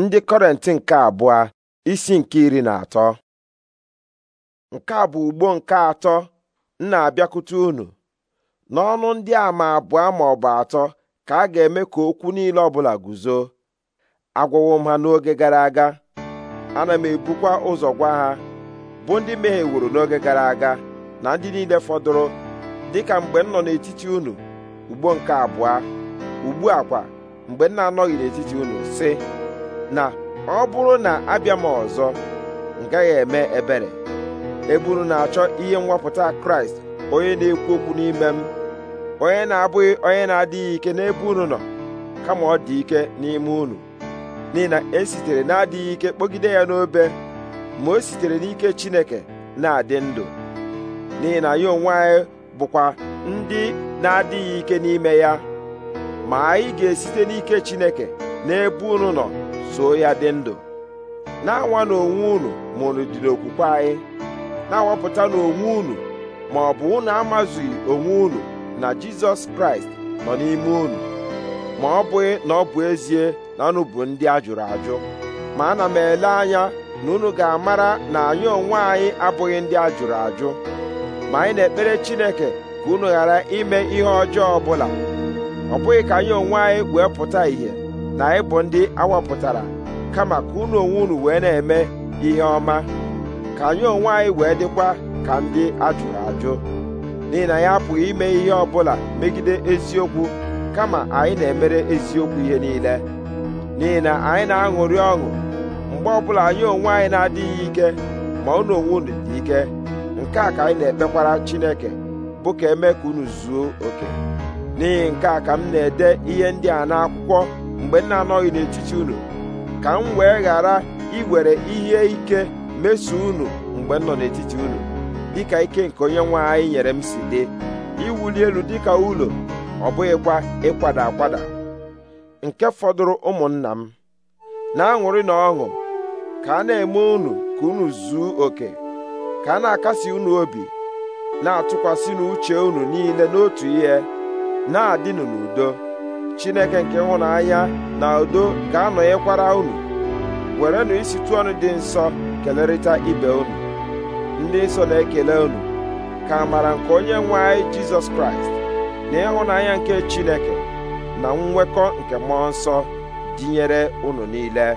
ndị kọrent nke abụọ isi nke iri na atọ nke a bụ ugbo nke atọ m na-abịakwute unu n'ọnụ ndị ama abụọ ma ọ bụ atọ ka a ga-eme ka okwu niile ọbụla guzo agwawo m ha n'oge gara aga ana m ebukwa ụzọ gwa ha bụ ndị mehiewuru n'oge gara aga na ndị niile fọdụrụ dịka mgbe m nọ n'etiti unu ugbo nke abụọ ugbu a kwa mgbe m na-anọghị n'etiti unu sị na ọ bụrụ na abịa m ọzọ m gaghị eme ebere eburu na-achọ ihe mwapụta kraịst onye na-ekwu okwu n'ime m onye na-abụghị onye na-adịghị ike n'ebe unu nọ kama ọ dị ike n'ime unu n'ihi na esitere na-adịghị ike kpọgide ya n'obe ma o sitere n'ike chineke na-adị ndụ n'ihi na ya onwe anyị bụkwa ndị na-adịghị ike n'ime ya ma anyị ga-esite n'ike chineke n'ebe unu nọ soo ya dị ndụ na-anwa n'onwe unu ma unu dị okwukwe anyị na-awapụta n'onwe unu ma ọ bụ unu amazughị onwe unu na Jizọs Kraịst nọ n'ime unu ma ọ bụghị na ọ bụ ezie na unu bụ ndị a jụrụ ajụ ma ana m ele anya na unu ga-amara na anyị onwe anyị abụghị ndị a jụrụ ajụ ma anyị na-ekpere Chineke ka unu ghara ime ihe ọjọọ ọbụla ọ bụghị ka anyị onwe anyị wee pụta ìhè na ịbụ ndị awapụtara kama ka unu onwe unu wee na-eme ihe ọma ka anyị onwe anyị wee dịkwa ka ndị ajụrụ ajụ n'ihi na ya apụghị ime ihe ọbụla megide eziokwu kama anyị na-emere eziokwu ihe niile n'ihi na anyị na-aṅụrị ọṅụ mgbe ọbụla anyị onwe anyị na-adịghị ike ma unu onwe unu dị ike nke a ka anyị na-ekpekwara Chineke bụ ka eme ka unu zuo oke n'ihi nke a ka m na-ede ihe ndị a n'akwụkwọ mgbe nna anọghị n'etiti unu ka m wee ghara iwere ihe ike meso unu mgbe m nọ n'etiti unu dịka ike nke onye nwe anyị nyere m si dị iwuli elu dịka ụlọ ọ bụghịkwa ịkwada akwada nke fọdụrụ ụmụnna m na-aṅụrị na ọṅụ ka a na-eme unu ka unu zuo oke ka a na-akasi unu obi na-atụkwasị n'uche unu niile n'otu ihe na-adịnụ n'udo chineke nke ịhụnanya na udo ga-anọnyekwara unu werenụ isitu ọnụ dị nsọ kelerịta ibe unu ndị nsọ na-ekele unu ka amara nke onye nwe anyị jizọs kraịst na ịhụnanya nke chineke na nnwekọ nke mmụọ nsọ dịnyere unu niile